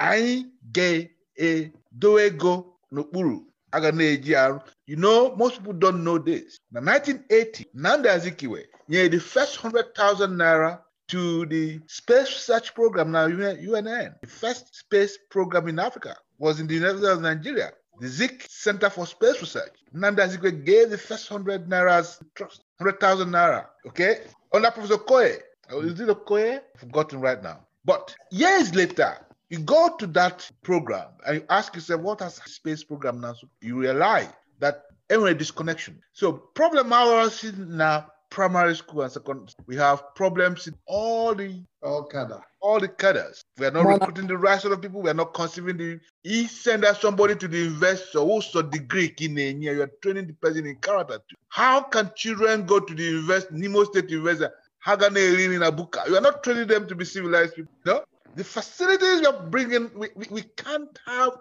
Anyị ga-edowe e ego n'okpuru a ga na You know, most people don't know this. Na 1980, Nanda Azikiwe nyere the first 100,000 naira to the space research program now UNN. The first space program in Africa was in the States of Nigeria. The Zik Center for Space Research. Nanda Zikwe gave the first 100 Naira's trust, 100,000 Naira, okay? Under Professor Koye. Is it Okoye? Forgotten right now. But years later, you go to that program and you ask yourself, what has space program now? You realize that anyway, disconnection. So problem hours now primary school and secondary. We have problems in all the all cadre. all the cadres. We are not recruiting the right sort of people. We are not conceiving the. He send us somebody to the investor who's a degree in a year. You are training the person in character. Too. How can children go to the invest Nemo State investor? Hagane in Abuka. You are not training them to be civilized people. No, the facilities we are bringing, we, we, we can't have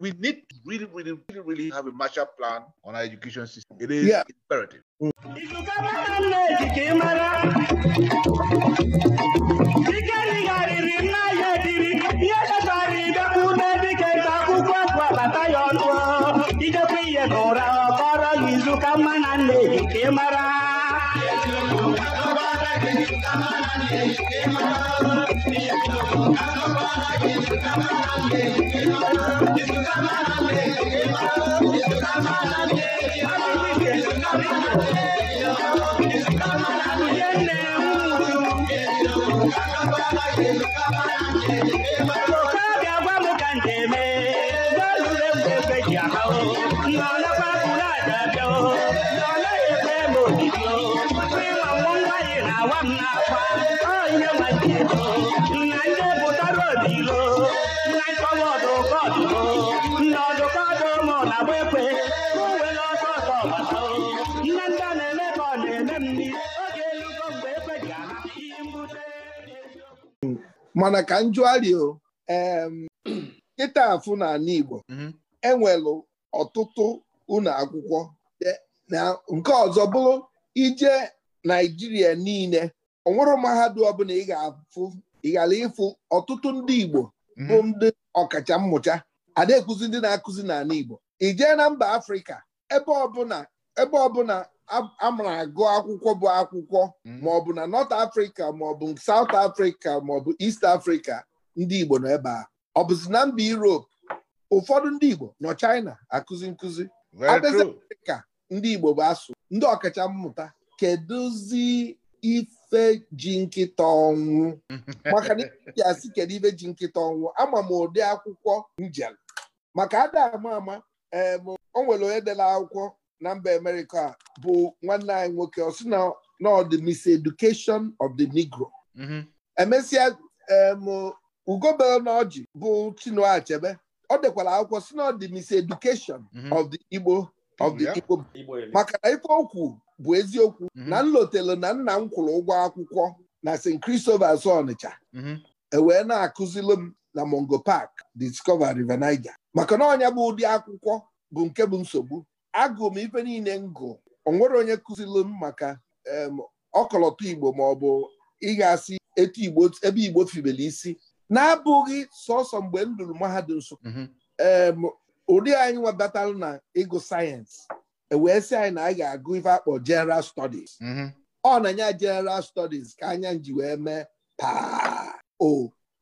we need to really, really, really, really have a Marshall Plan on our education system. It is yeah. imperative. ihe nna Thank you. Thank <laughs> mana ka njụarịo <clears throat> kịta afụ n'ala Igbo mhm. enwelụ ọtụtụ ụlọ akwụkwọ e, nke ọzọ bụrụ ije Naijiria niile onwere mahadum ọbụla ị ịfụ ọtụtụ ndị Igbo mhm. bụ ndị ọkacha mmụcha. ada ekuzi ndị na-akụzi n'ala Igbo ijee na mba Afrịka ebe ọbụla amara agụ akwụkwọ bụ akwụkwọ hmm. maọbụ na North afrịka maọbụ saut afrịka maọbụ est afrịka ndị Igbo nọ ebe a ọ bụzi na mba Europe ụfọdụ ndị Igbo nọ China akụzi nkụzi ka ndị Igbo bụ asụ ndị ọkacha mmụta kedụzi ife ji nkịta ọnwụ <laughs> maka na asị kedu ife ji nkịta ọnwụ ama m ụdị akwụkwọ njem maka ada ama ama ee o onye dela akwụkwọ na mba amerịka bụ nwanne anyị nwoke ọ sị na ọ dị miseducation of the negro mhm. emesịa ugobere bụ Chinua Achebe ọ dekwara akwụkwọ sị na ọ dị miseducation mhm. of the igbo of the igbo maka na ife okwu bụ eziokwu mhm. na nlotelu na nna m kwụrụ ụgwọ akwụkwọ na St. Christopher's Ọnịcha ewee na-akụzilụ m na mongo Park Discover River Niger maka na ọnya bụ ụdị akwụkwọ bụ nke bụ nsogbu agụ m ife niile ngụ onwere onye kụzilu m maka ọkọlọtọ igbo ma ọ bụ ịgasị etu igbo ebe igbo fibele isi na-abụghị sọsọ mgbe m mahadum nsụka mhm. ụdị anyị nwabatalụ na ịgụ sayensị e wee sị anyị na anyị ga-agụ ife akpọ jeneral studies mhm. ọ na-enye jeneral studies ka anya ji wee mee paa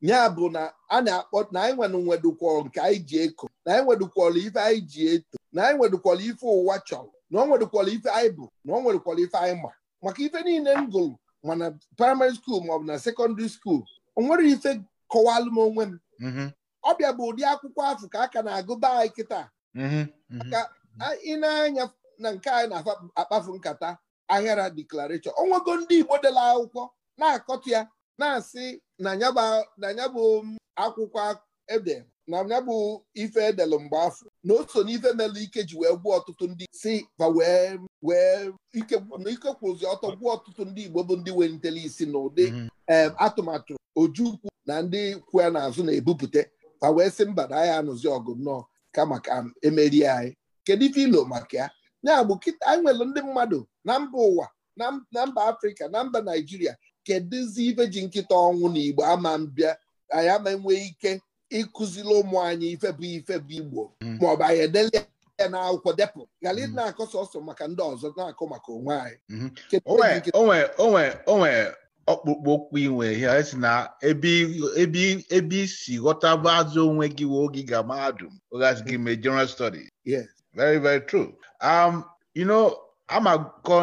ya bụ na a na-akpọ na anyị e nwere nwedokwọrọ nke anyị ji eko na anyị e nwedokwọrọ ife anyị ji eto na anyị e nwedokwọrọ ife ụwa chọrọ na ọ nwedokwọrọ ife anyị bụ na ọ nwedokwọrọ ife anyị ma maka ife niile m gụrụ mana na praịmarị skuul maọbụ na sekọndịrị skuul o nwere ife kọwalụ m onwe m mm-hmm. ọbịa bụ ụdị akwụkwọ afọ ka a ka na-agụ be anyị kịta mm-hmm. mm-hmm. aka ị na-anya na nke anyị na-akpafu nkata ahịara deklarashọn onwego ndị Igbo dela akwụkwọ na-akọtụ ya na-asị na ya bụ akwụkwọ ede na ya bụ ife edelụ mgbe afọ na o so n'ife melụ ike ji wee gwuo ọtụtụ ndị si ba wee wee ike kwụzi ọtọ gwuo ọtụtụ ndị Igbo bụ ndị welitele isi na ụdị mhm. atụmatụ ojukwu na ndị kwu ya n'azụ na-ebupụta fa wee sị mba na anyị anụzi ọgụ nnọọ kama ka emerie anyị kedu ife ilo maka ya ya bụ anyị nwere ndị mmadụ na mba ụwa na mba Afrịka na mba naijiria. kedụzi ife ji nkịta ọnwụ na igbo ama mbịa anyị ama enwe ike ịkụziri ụmụ anyị ife bụ ife bụ igbo hmm. maọbụ anyị edele ya na akwụkwọ depụ ghara ị hmm. na-akọ sọsọ maka ndị ọzọ na-akọ maka onwe anyị hmm. onwe ọkpụkpụ okpu inwe ya si na ebe isi ghọtaba azụ onwe gị oge ga mahadum ogasị gị mee general studies yes very very true um you know a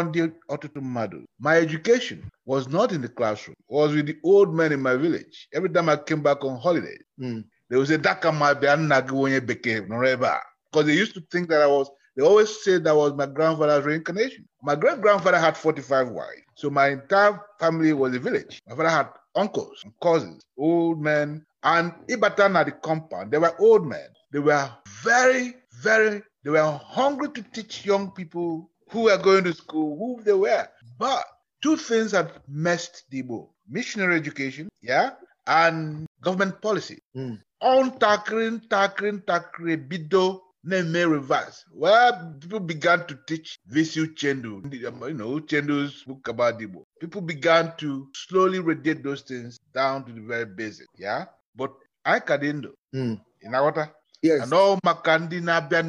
ndị ọtụtụ mmadụ my education was not in the classroom was with the old men in my village every time I came back on holiday hmm, they would say daka ma bịa nna gị onye bekee nọrọ ebe a because they used to think that I was they always said that was my grandfather's reincarnation my great grandfather had 45 wives so my entire family was a village my father had uncles and cousins old men and ịbata na the compound they were old men they were very very they were hungry to teach young people who were going to school, who they were. But two things have messed Debo missionary education, yeah, and government policy. Hmm. On tackling, tackling, tackling, bido, name reverse. Well, people began to teach Visu Chendu, you know, Chendu's book about Debo. People began to slowly radiate those things down to the very basic, yeah. But I Kadindo, do hmm. in Awata, anọ maka ndị na-abịa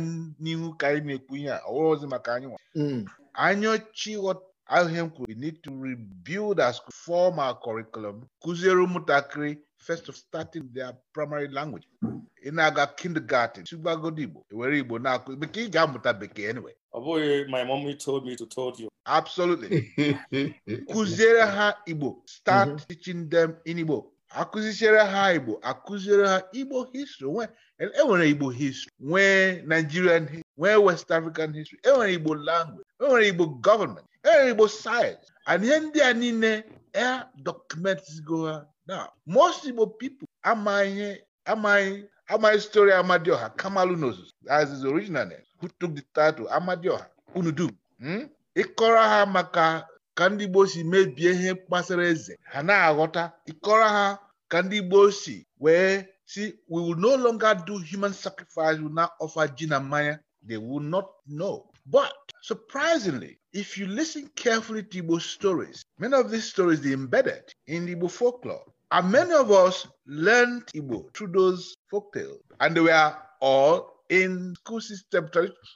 n'ihu ka anyị na-ekwu ihe a ọghọzi maka anyị nwa mm. anyaochi ahịa m kwuru we need to rebuild our school form our curriculum kụziere ụmụntakịrị first of starting their primary language ị na-aga kindergarten tụgbagodi Igbo ewere Igbo na-akụ bekee ị ga-amụta bekee anyway ọ bụghị my mommy told me to told you absolutely <laughs> kụziere ha Igbo start mm-hmm. teaching them in Igbo akụzichiere ha igbo akụziere ha igbo histri enwere igbo histri nwee nigerian histri nwee west african histri enwere igbo language enwere igbo gọọmenti enwere igbo sayensị and ihe ndị a niile e dokumentigo ha na most igbo pipo amaghị amaghị amaghị stori amadioha kamalu n'ozuzu as is original who took the title amadioha unu dum hmm? ịkọrọ ha maka ka ndị Igbo si mebie ihe gbasara eze ha na-aghọta ịkọrọ ha ka ndị Igbo si wee si we will no longer do human sacrifice we offer ji na mmanya they will not know but surprisingly if you listen carefully to Igbo stories many of these stories dey embedded in Igbo folklore and many of us learned Igbo through those folktales and they were all in school system,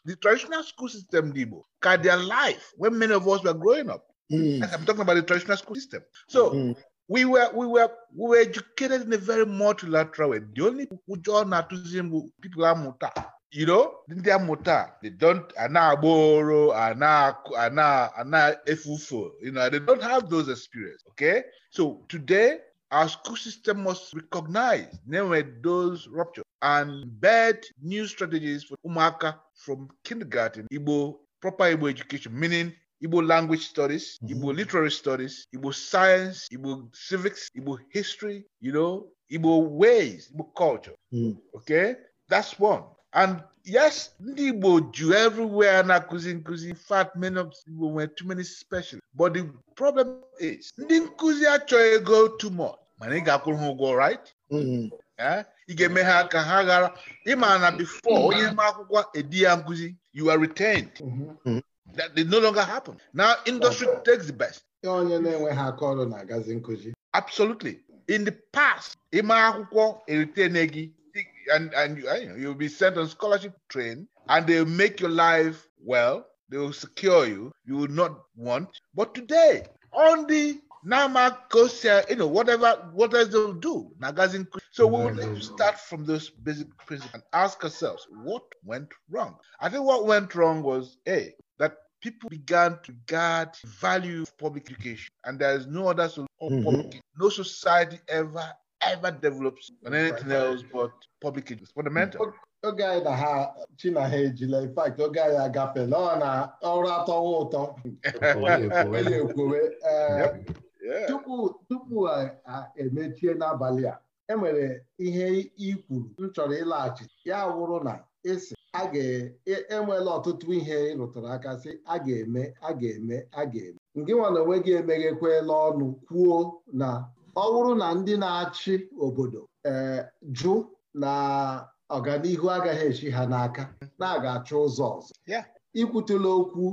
the traditional school system, Igbo, their life when many of us were growing up. Mm. I'm talking about the traditional school system. So mm. we were we were we were educated in a very multilateral way. The only John Atuzim people are muta. You know, ndị Muta, they don't ana agboro, ana ana ana efufo. You know, they don't have those experience. Okay, so today our school system must recognize namely those ruptures and bet new strategies for umaka from kindergarten Igbo proper Igbo education, meaning Igbo language studies, mm -hmm. Igbo literary studies, Igbo science, Igbo civics, Igbo history, you know, Igbo ways, Igbo culture. Mm. Okay? That's one. And yes, ndị Igbo ju everywhere na nkuzi nkuzi in fact many of Igbo nwere too many special But the problem is ndị nkuzi achọghị ego too much mana ị ga-akwụrụ ha ụgwọ right? Mm-hmm. Eh? ị ga-eme ha ka ha ghara ịma na before onye ma akwụkwọ edi ya nkuzi, you are retained. Mm-hmm. Mm-hmm. that did no longer happen. Now industry okay. takes the best. onye na-enweghị aka ọrụ na-agazi nkụzi. Absolutely. In the past, ịma akwụkwọ eritene gị and and you, you'll be sent on scholarship train and they'll make your life well. They will secure you. You will not want. But today, on the Nama Kosia, you know, whatever, what else they'll do. Nagazin. So we will mm-hmm. start from those basic principles and ask ourselves what went wrong. I think what went wrong was A, that people began to regard value of public education, and there is no other solution. Mm-hmm. No society ever ever develops on anything right. else but public education. It's fundamental. Mm. Oge na ha China ha ejila in fact oge anyị agafela ọ na ọrụ atọwa ụtọ onye ekwowe <laughs> eh, tupu emechie n'abalị a enwere ihe ikwuru m chọrọ ịlaghachi ya wụrụ na ịsị a ga-enwela e, e ọtụtụ ihe ị rụtara aka sị a ga-eme a ga-eme a ga-eme ngị nwa na onwe gị emeghekwela ọnụ kwuo na ọ bụrụ na ndị na-achị obodo ee jụ na ọganihu agaghị echi ha n'aka na aga achọ ụzọ ọzọ ikwutela okwu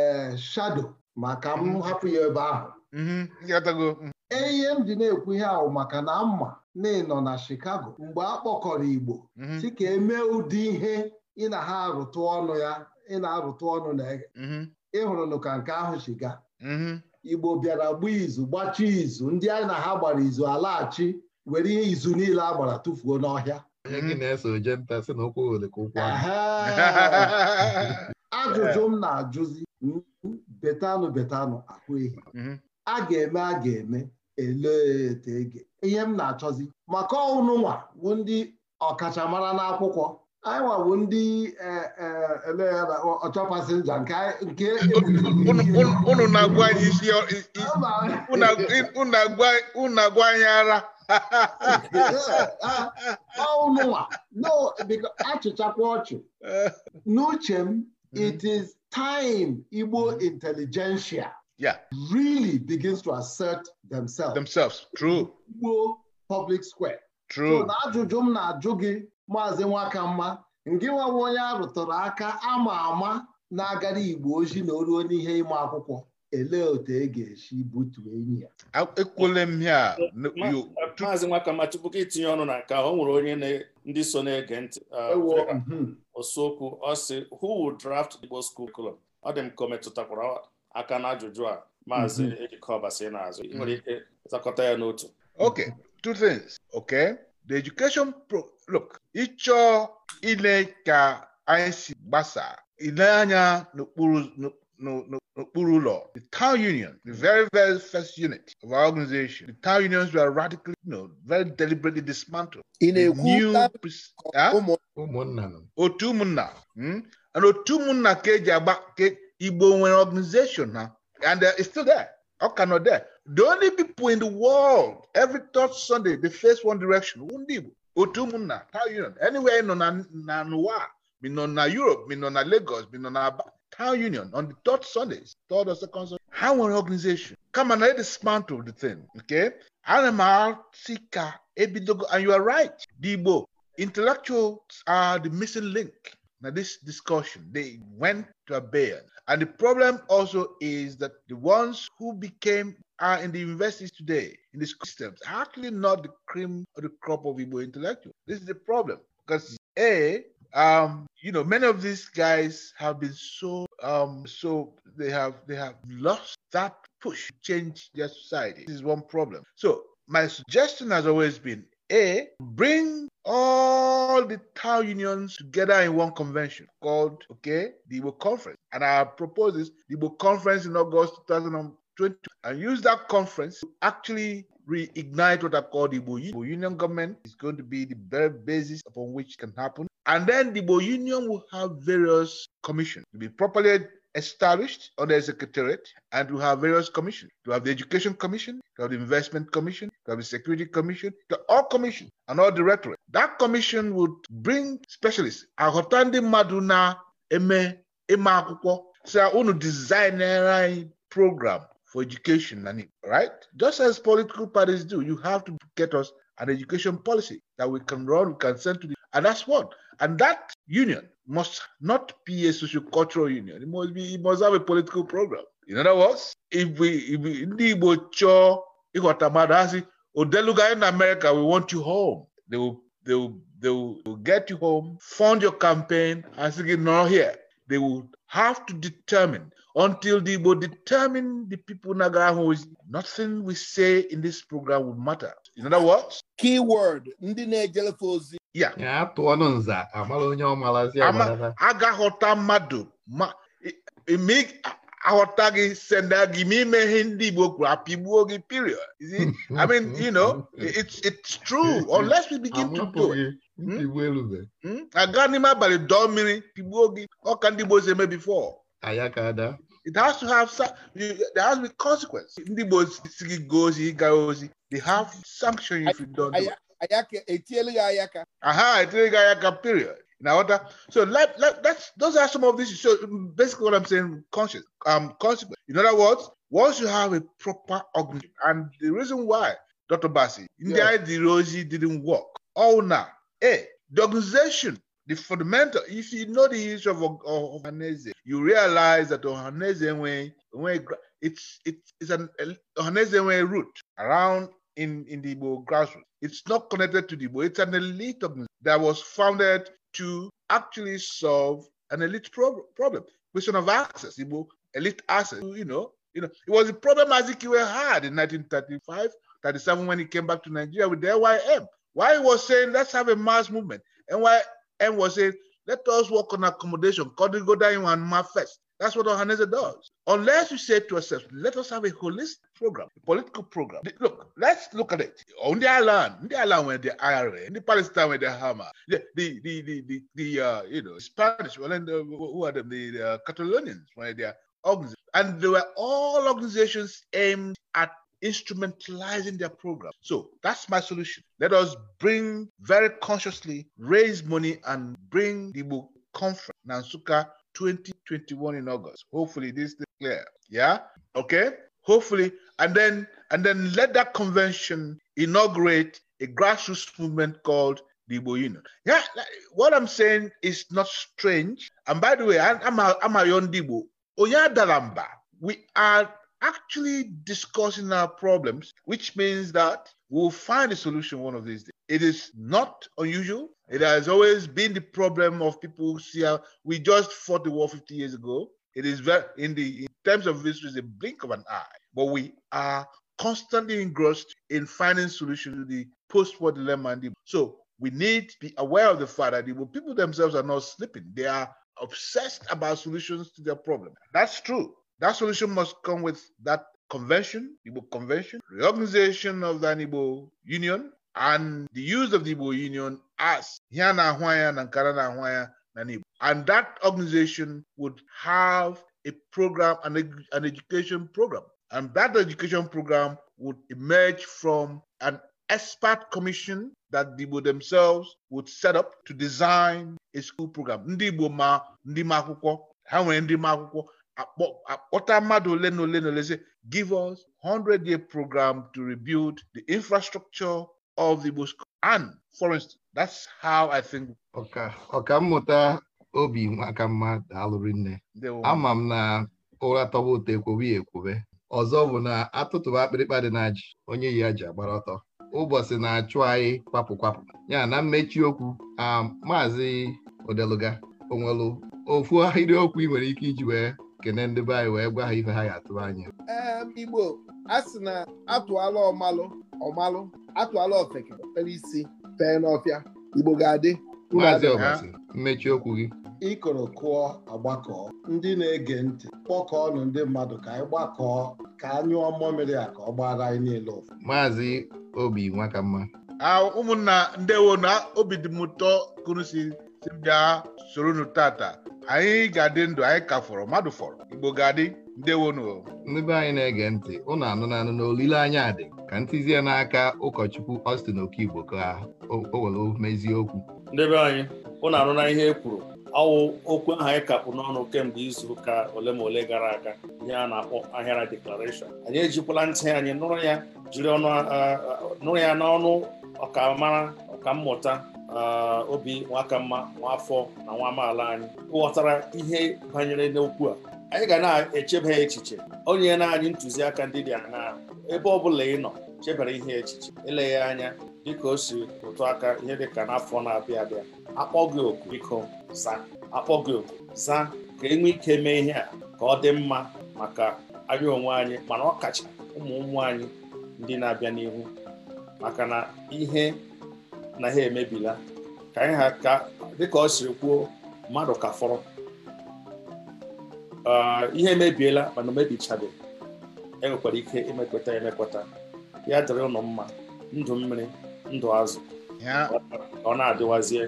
ee shado maka m mm-hmm. hapụ ya ebe ahụ mm-hmm. mm-hmm. e, ihe m dị na-ekwu ihe ahụ maka na mma na ịnọ na Chicago mgbe a kpọkọrọ Igbo si ka emee ụdị ihe ị na ha arụtụ ọnụ ya ị na-arụtụ ọnụ na mm-hmm. ịhụrụnụ ka nke ahụ si gaa. Mm-hmm. Igbo bịara gbaa izu gbachie izu ndị anyị na ha gbara izu alaghachi were ihe izu niile a gbara tụfuo n'ọhịa <laughs> ajụjụ m na-ajụzi hmm, betanụ betanụ ahụ ehi mm-hmm. a ga-eme a ga-eme eleete ege ihe m na-achọzi maka nwa bụ ndị ọkachamara n'akwụkwọ anyị bụ ndị e, e, ọchọpasinja nke <laughs> unu na-agwa anyị isi unu na-agwa anyị ara ha ha ha achịchakwa ọchị n'uche m mm-hmm. it is time Igbo mm-hmm. intelligentsia really begins to assert themselves themselves true Igbo public square true ajụjụ m na-ajụ gị maazị Nwaka mma, ngị nwawa onye a rụtụrụ aka ama ama na-agara igbo ojii na oruo n'ihe ịma akwụkwọ elee otu e ga-esi butu enyi ya ekwule m ya maazị Nwaka nwakamma tupu ka itinye ọnụ na nka ọ nwere onye ndị so na-ege ntị uh, e mhm. osokwu ọ sị who would draft Igbo school curriculum ọ dị m ka o metụtakwara aka n'ajụjụ a maazị mhm. ejikọ n'azụ ị nwere mhm. ike zakọta ya n'otu okay two things okay the education pro look ịchọ ile ka anyị si gbasa ile anya n'okpuru ụlọ the town union the very very first unit of our organization the town unions were radically you know, very deliberately dismantled ị na-ekwu otu ụmụnna hmm? and otu ụmụnna ka eji agba igbo nwere organization ha and uh, it's still there ọ ka nọ there the only people in the world every third sunday they face one direction ndị igbo otu ụmụnna town union anywhere nọ na n'ụwa mi nọ na Europe mi nọ na Lagos mi nọ na Aba town union on the third sunday third or second Sunday ha nwere organization kama na e dismantle the thing nke ana m asị ka ebidogo and you are right the Igbo intellectuals are the missing link na this discussion they went to abeyance and the problem also is that the ones who became are in the universities today, in the systems, are actually not the cream or the crop of Igbo intellectuals. This is the problem because a um, you know many of these guys have been so um, so they have they have lost that push to change their society. This is one problem. So my suggestion has always been a bring all the town unions together in one convention called okay the Igbo Conference, and I propose this the Igbo Conference in August 2020 and use that conference to actually reignite what I call the Igbo Union government. is going to be the very basis upon which can happen. And then the Igbo Union will have various commissions to be properly established under a secretariat and to have various commissions. To have the Education Commission, to have the Investment Commission, to have the Security Commission, to all commissions and all directorate. That commission would bring specialists. Ahotandi Maduna Eme Eme Akwụkwọ. So unu designer program for education and right just as political parties do you have to get us an education policy that we can run we can send to the and that's what and that union must not be a sociocultural union it must be it must have a political program in other words if we if we ndị igbo chọọ ịghọta mmadụ asị odeluga in america we want you home they will, they will, they will, they will get you home fund your campaign and say gị here they would have to determine until they Igbo determine the people Nagara who is nothing we say in this program would matter. In other words, keyword ndị na-ejelefe ozi ya atụọ nza amara onye ọmalazi agaghọta mmadụ ma e, e, aghọta gị senda gị ma ime ihe ndị Igbo kwuru apịgbuo gị period I mean you know <laughs> it's it's true unless we begin <laughs> to do it aga n'ime abalị dọọ mmiri pigbuo gị ọka ndị Igbo si eme before it has to have there has to be consequence ndị Igbo si gị gaa ozi ịga ozi they have sanction if you don't do etielu gị ayaka aha etielu ayaka period Now, so like, like that's those are some of these. So basically, what I'm saying, conscious, um, consequence. In other words, once you have a proper organization, and the reason why Dr. Basi India yes. didn't work, all now A, the organization, the fundamental, if you know the history of, of Ohaneze, you realize that Ohanese Enwe, it's, it's, it's an Ohanese Enwe root around in, in the Igbo grassroots. It's not connected to the Igbo. It's an elite organization that was founded to actually solve an elite pro- problem, question of access, Igbo elite access, you know, you know, it was a problem Azikiwe had in 1935, 37 when he came back to Nigeria with the LYM. Why he was saying, let's have a mass movement. And why and was saying, let us work on accommodation, go down da Iwanma first. That's what Ohanese does. Unless you say to yourself, let us have a holistic program, a political program. Look, let's look at it. On the island, on the island when the IRA, in the Palestine where the Hamas, the the the the, the, the uh, you know Spanish, well, and the, uh, who are them? The, the uh, Catalonians where they are and they were all organizations aimed at instrumentalizing their program. So that's my solution. Let us bring very consciously raise money and bring the book conference Nansuka 2021 in August. Hopefully this is clear. Yeah. Okay. Hopefully, and then and then let that convention inaugurate a grassroots movement called the Union. Yeah, what I'm saying is not strange. And by the way, I'm a, I'm a Yon Oya We are actually discussing our problems, which means that we'll find a solution one of these days. It is not unusual. It has always been the problem of people see how we just fought the war 50 years ago. It is very, in the in terms of history, it's a blink of an eye. But we are constantly engrossed in finding solutions to the post-war dilemma. so we need to be aware of the fact that the people themselves are not sleeping. They are obsessed about solutions to their problem. That's true. That solution must come with that convention, Igbo convention, reorganization of the Igbo Union, and the use of the Igbo Union as here na ahwanya na na Igbo. And that organization would have a program, an, an education program. And that education program would emerge from an expert commission that the Igbo themselves would set up to design a school program. Ndị Igbo ma ndi ma akwụkwọ, ha nwere akpọta mmadụ ole na ole na ole give us 100 year program to rebuild the infrastructure of the Igbo and forest!" that's how I think ọka ọka mmụta obi nwaka mma alụrụ nne ama m na ụra tọba ụtọ ekwobe ekwube ọzọ bụ na atụtụba akpịrịkpa dị na ji onye yi ya ji agbara ọtọ ụbọchị na-achụ anyị kwapụ kwapụ ya na mmechi okwu a um, maazị odeluga onwelu ofu ahịrịokwu ị nwere ike iji wee kene ndị be anyị wee gwa ha ife ha ya atụrụ anya igbo a sị na atụala ọmalụ ọmalụ atụala ofeke pere isi fee n'ọfịa igbo ga-adị maazị ọbasi mmechi okwu gị ịkọrọ kụọ agbakọ ndị na-ege ntị kpọkọọ kpọkọọnụ ndị mmadụ ka anyị gbakọọ ka anyụọ mmiri a ka ọ gbara anyị niile ụfụ maazị obi mma. ụmụnna ndewo na obi dị m ụtọ kụrụ si bịa soro nu tata anyị ga-adị ndụ anyị ka fọrọ mmadụ fọrọ igbo ga-adị ndewonu ndị anyị na-ege ntị ụnụ anụna anụ olileanya dị ka ntizie n'aka ụkọchukwu Austin Okigbo ka o were mezie okwu ndebe anyị ụnụ anụna ihe e kwuru ọwụ okwu ahụ anyị kapụ n'ọnụ kemgbe izu ụka ole ma ole gara aga ihe a na-akpọ ahịara deklarashọn anyị ejikwala ntị anyị nụrụ ya jiri nụrụ ya n'ọnụ ọkammụta Ah, obi nwaka mma afọ na nwa amaala anyị ghọtara ihe banyere n'okwu a anyị ga na-echeba echiche onye na anyị ntụziaka ndị dị aṅaa ebe ọ bụla ị nọ chebere ihe echiche eleghị anya dịka o si ụtụ aka ihe dịka n'afọ na-abịa abịa akpọ gị oku biko za akpọ gị oku za ka enwe ike mee ihe a ka ọ dị mma maka anyị onwe anyị mana ọ ụmụ ụmụ anyị ndị na-abịa n'ihu maka na ihe na ha emebila ka ha ka dịka ọ siri kwuo mmadụ ka fọrọ ah, ihe emebiela mana omebichabeghị enwekwara ike imekweta emekweta ya dịrị ụlọ mma ndụ mmiri ndụ azụ ọ na-adịwazie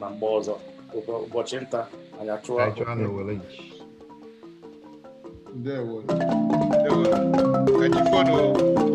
na mgbe ọzọ ụbọchị nta anyị achụwa